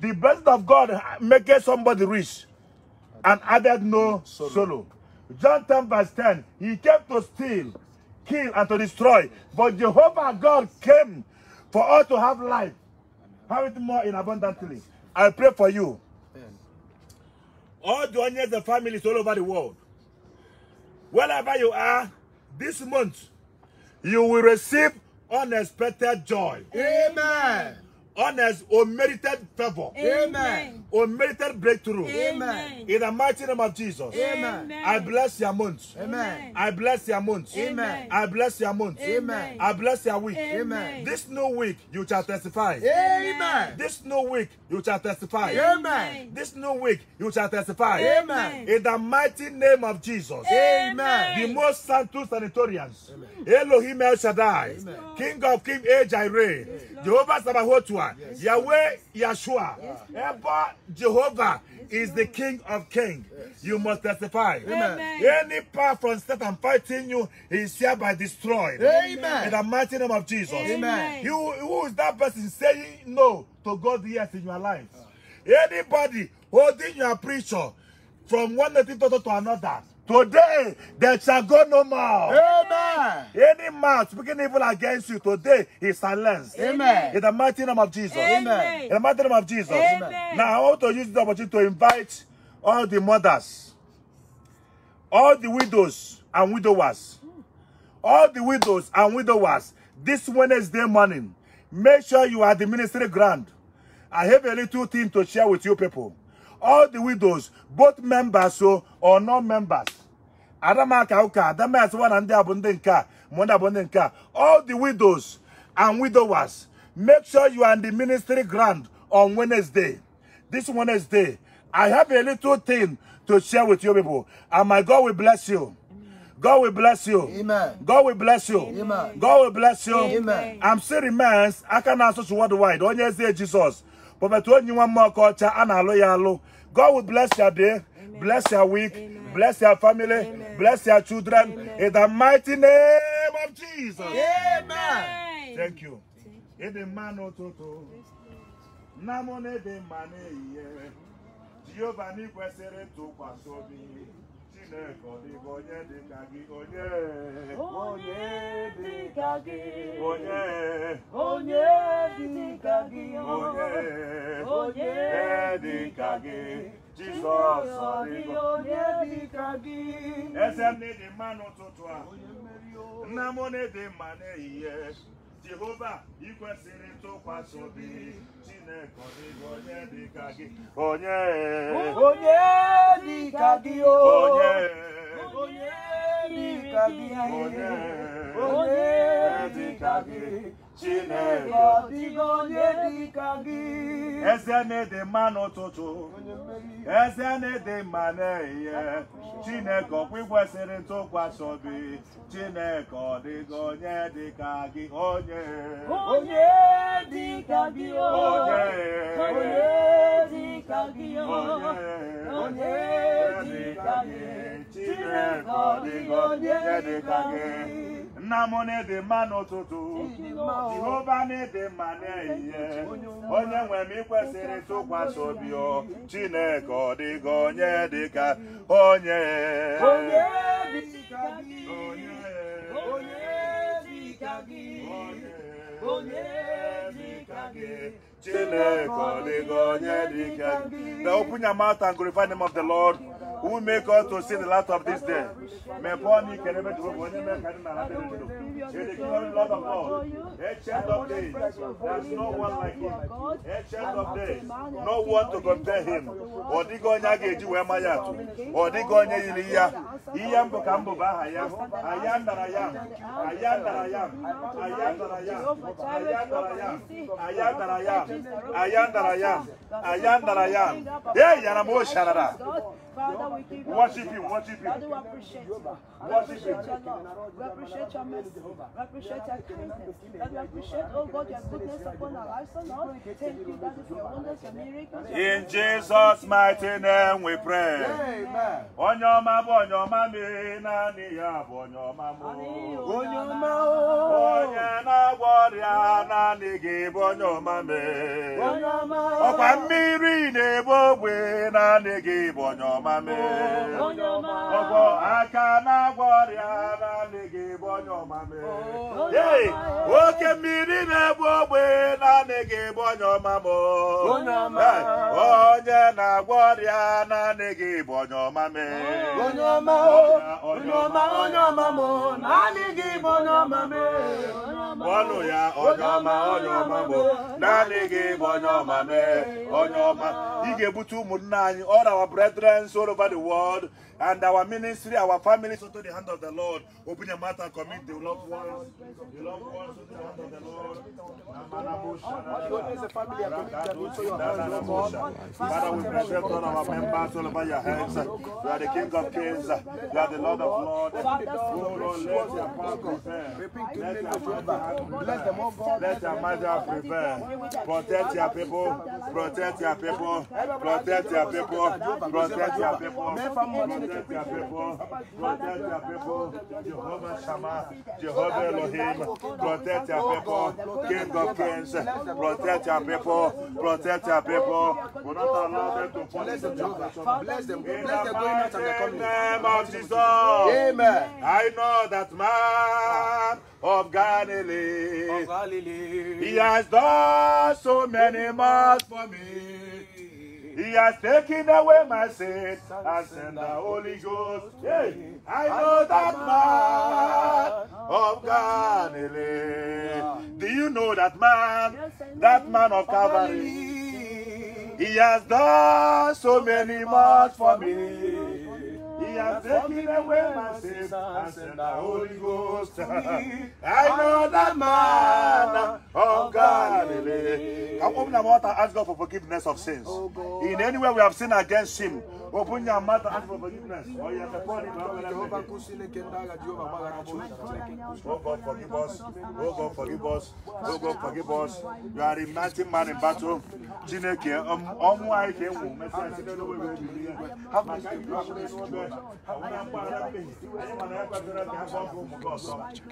The blessing of God maketh somebody rich and added no sorrow. John 10 verse 10, he came to steal, kill, and to destroy. But Jehovah God came for us to have life. Have it more in abundantly. I pray for you. All the onions and families all over the world. Wherever you are, this month, you will receive unexpected joy. Amen honors or merited favor. Amen unmerited breakthrough. Amen. In the mighty name of Jesus. Amen. I bless your month. Amen. I bless your month. Amen. I bless your month. Amen. I bless your week. Amen. This new week you shall testify. Amen. This new week you shall testify. Amen. This new week you shall testify. Amen. In the mighty name of Jesus. Amen. The most sanctus sanatorians. Elohim El Shaddai. King of King Ajay Jireh. Jehovah Sabaoth. Yahweh Yeshua. Yes, Jehovah is the King of kings. You must testify. Amen. Any power from Satan fighting you is hereby destroyed. Amen. In the mighty name of Jesus. Amen. You, who is that person saying no to God yes in your life? Anybody holding your preacher from one native to another Today, there shall go no more. Amen. Any man speaking evil against you today is silenced. Amen. In the mighty name of Jesus. Amen. In the mighty name of Jesus. Amen. Now, I want to use the opportunity to invite all the mothers, all the widows and widowers, all the widows and widowers, this Wednesday morning, make sure you are the ministry ground. I have a little thing to share with you people all the widows, both members oh, or non-members. Adamaka Kauka, Adamasịwa na ndị a bụ All the widows and widowers, make sure you are in the ministry ground on Wednesday. This Wednesday, I have a little thing to share with you people. And my God will bless you. God will bless you. Amen. God will bless you. Amen. God will bless you. Amen. I'm still man. I can answer to worldwide. Onye say Jesus. But one more Prophet Onyiwamokocha Analo Yalo. God will bless your day, Amen. bless your week, Amen. bless your family, Amen. bless your children. In the mighty name of Jesus. Amen. Thank you. In the man ototo. Namone de mane ye. Jehovah to kwasobi. Chineke ọ dịghị onye dị ka gị onye onye dị ka gị onye onye dị ka gị onye onye dị ka gị Jizọs ọ dịghị onye dị ka gị eze m na-edi mma n'ụtụtụ a nna m na-edi mma n'ehihie jehova ị kwesịrị ntụkwasị obi chineke onye dịka gị onye onye dịka gị oh. onye Onye dịka gị onye dịka gị Chineke ọdịgo onye dịka gị Eze na-ede mma n'ụtụtụ eze na-ede mma n'ehihie Chineke ọkwa ikwesịrị ntụkwasị obi Chineke ọdịgo onye dịka gị onye onye dịka gị onye onye dịka gị onye onye dịka gị Namone de mano to do. Jehovah de mane ye. Onye we mi kwesere to kwa so bi o. Chineke de gonye de ka. Onye. Onye de ka gi. Onye. Onye de ka gi. Onye. Onye de ka gi. Chineke de gonye de ka gi. Now open your mouth and glorify the name of the Lord. who make us to see the light of this day to the glory, Lord of A child of days, there's no one like him. A child of days, no one to compare him. Ọdịgo onye a ga-eji wee maya atụ. Ọdịgo onye yiri ya. Ihe mbụ ka mbụ bụ aha ya. Aya ndara ya. Aya ndara ya. Aya ndara ya. Aya ndara ya. Aya ndara ya. Aya ndara ya. Aya ndara ya. Ee, yara m o sharara. Father, we give you worship him, worship him. Father, you. We appreciate your love. We appreciate your mercy. We appreciate your kindness. That we appreciate, oh God, your goodness upon our lives, O Lord. Thank you, that is your wonders, your miracles. In Jesus' mighty name we pray. Amen. Onye ọma bụ onye ọma mmiri naanị ya bụ onye ọma m. Onye ọma onye na-agwọ ọrịa naanị gị bụ onye ọma mmiri. Onye ọma ọkwa mmiri na-ebu ogbe naanị gị bụ onye ọma mmiri. Onye ọma ọkwa aka na-agwọ ọrịa naanị gị bụ onye ọma mmiri. ei oke mmiri na-egbu ogbe naanị ga bụ onye ọma m onye na-agwọ ọrịa naanị gị bụ onye ọma m onye ọma onye ọma onye ọma m naanị gị bụ onye ọma m ọnụ ya onye ọma onye ọma m naanị gị bụ onye ọma m onye ọma ị ga-ebute ụmụnna anyị all our brethren all over the world and our ministry, our families into the hand of the Lord. Open your mouth and commit the loved ones, the loved ones into the hand of the Lord. Father, we present all our members all over your hands. You are the King of Kings. You are the Lord of Lords. Oh Lord, let your power prevail. Let your might Let your might prevail. Protect your people. Protect your people. Protect your people. Protect your people protect your people, protect your people, Jehovah Shammah, Jehovah Elohim, protect your people, King of Kings, protect your people, protect your people, will not allow them to punish them, bless them, bless them going out In the name of Jesus, Amen. I know that man of Galilee. of Galilee, he has done so many miles for me. He has taken away my sin and sent the Holy Ghost. Hey, I know that man of Galilee. Do you know that man? That man of Calvary. He has done so many much for me has taken away my sins and sent the Holy Ghost to me. I know that man of Galilee. Can open our mouth and ask God for forgiveness of sins. Oh, In any way we have sinned against him Open your mouth and ask for forgiveness. Or you have a Oh God, forgive us. Oh God, forgive us. Oh God, forgive us. You are a mighty man in battle. Jineke, ọmú àìkè I mẹ́ta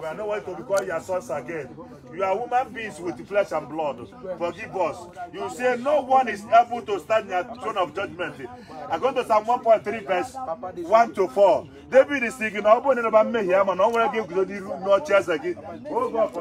We are not worthy to call your sons again. You are human beings with flesh and blood. Forgive us. You say no one is able to stand in the throne of judgment. I'm going to Psalm 1.3 verse 1 to 4 David si na ọ bụrụ na ịrịba mmehie mana ọ nwere gị guzo n'iru n'ọchị eze gị oh oh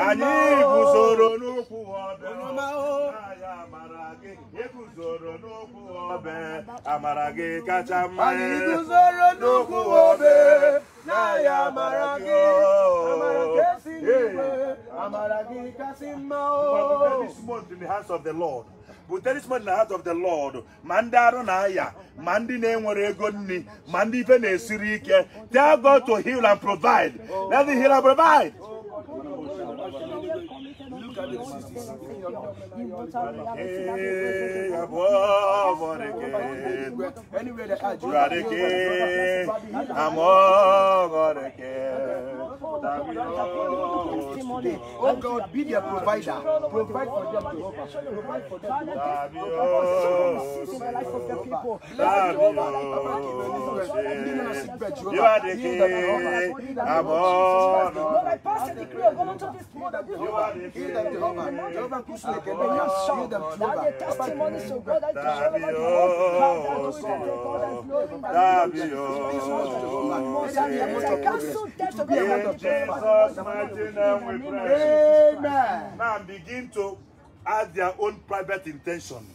anyị onye e amara gị kacha mma iguzoro e. amara gị kacha mme Lord ma ndị arụ na-aya ma ndị na-enwere ego nri ma ndị ife na-esiri ike tell God to heal and provide let you are the king. I'm all the king. Oh God, be their provider. Provide for them to Provide for them to You are the king. I'm all the king. E Now begin to add their own private intention,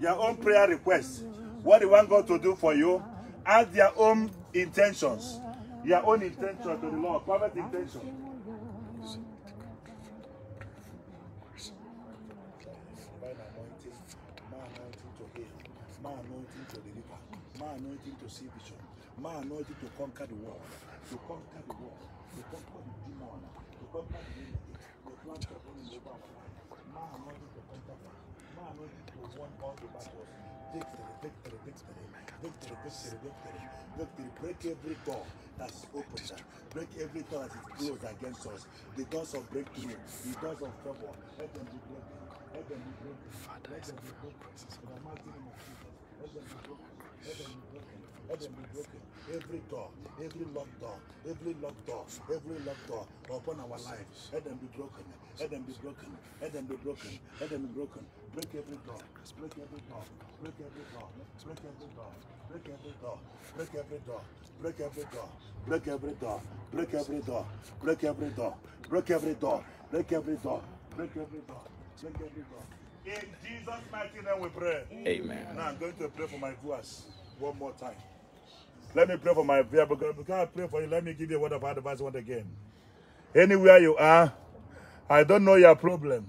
your own prayer request. What do they want God to do for you, add their own intentions, your own intention to the Lord, private intention. anointing, my anointing to heal, my anointing to deliver, my anointing to see vision, my anointing to conquer the world, to conquer the world, to conquer the demon, to conquer the enemy, the plant of the my anointing to conquer, my anointing to won all the battles. Victory, victory, victory, victory, victory, victory, victory. Break every door that is opened. Break every door that is closed against us. The doors of breakthrough, the doors of trouble. Let them be broken. Father, I ask for your presence Father, Every door, every locked door, every locked door, every locked door upon our lives, let them be broken, let them be broken, let them be broken, let them be broken. Break every door, break every door, break every door, break every door, break every door, break every door, break every door, break every door, break every door, break every door, break every door, break every door, break every door. In Jesus' mighty name we pray. Amen. Now I'm going to pray for my viewers one more time. Let me pray for my viewers. Because I pray for you, let me give you a word of advice once again. Anywhere you are, I don't know your problem.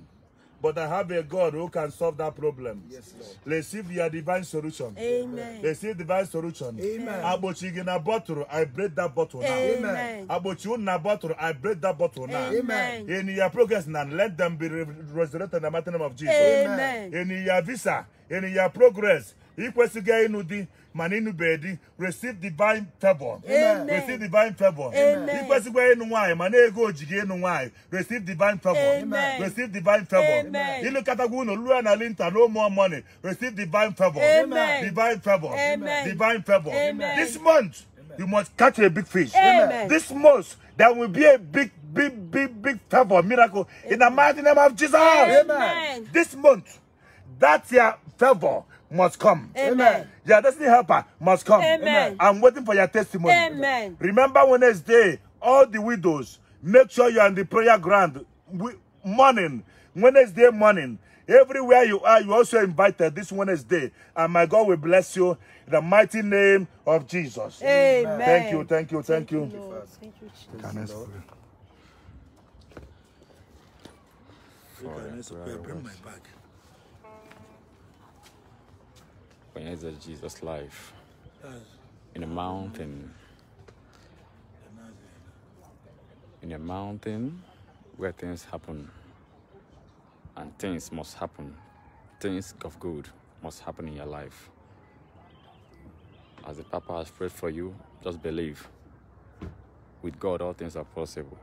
But I have a God who can solve that problem. Yes, Lord. Receive your divine solution. Amen. Receive divine solution. Amen. Abochi na bottle, I break that bottle now. Amen. Abochi na bottle, I break that bottle now. Amen. In your progress now, let them be resurrected in the mighty name of Jesus. Amen. In your visa, in your progress, ikwesịghị ịnụ di mana ịnụbeghị di receive divine favor receive divine favor ikwesịghị ịnụ nwaanyị mana ego ojighị ịnụ nwaanyị receive divine favor receive divine favor ịlụkọtagwa unu lụọ na linta no more money receive divine favor divine favor divine favor this month you must catch a big fish this month there will be a big big, big, big favor, miracle Amen. in the mighty name of Jesus. Amen. This month, that's your favor must come. Amen. Your destiny helper must come. Amen. I'm waiting for your testimony. Amen. Remember Wednesday, all the widows, make sure you're on the prayer ground. morning, Wednesday morning, everywhere you are, you're also invited this Wednesday. And my God will bless you in the mighty name of Jesus. Amen. Thank you, thank you, thank, thank you. you Can I pray? Bring my bag. kwenye Jesus life in a mountain. In a mountain where things happen and things must happen. Things of good must happen in your life. As the Papa has prayed for you, just believe. With God, all things are possible.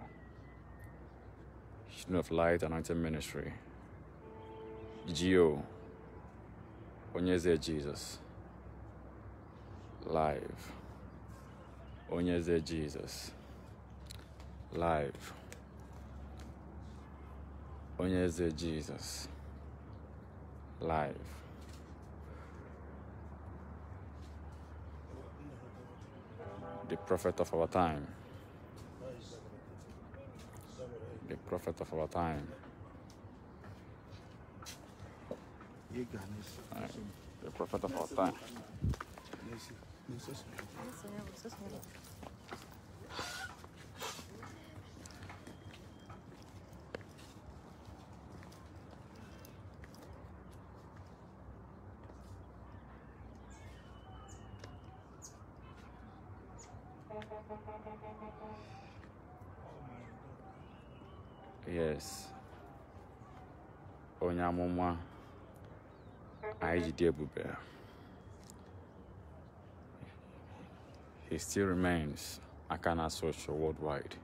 Student of Light Anointed Ministry. GO. Onyeze Jesus. Live. Onyeze Jesus. Live. Onyeze Jesus. Live. The prophet of our time. The prophet of our time. Ah, o profeta faltar. Tá. É é yes. Onyamuma. I He still remains Akana Social worldwide.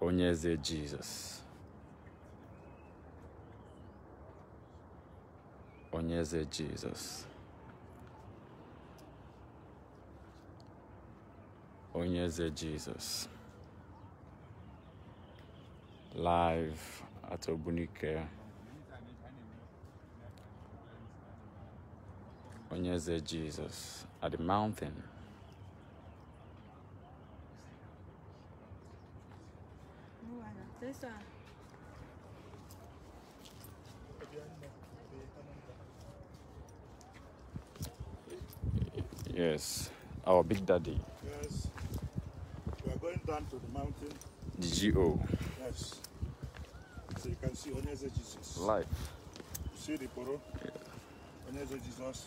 Onyeze Jesus. Onyeze Jesus. Onyeze Jesus. Live at Obunike. Onyeze Jesus at the mountain. Yes, our big daddy. Yes. We are going down to the mountain. The GO. Yes. So you can see Onyeze Jesus. Life. You see the poro? Yeah. Onyeze Jesus.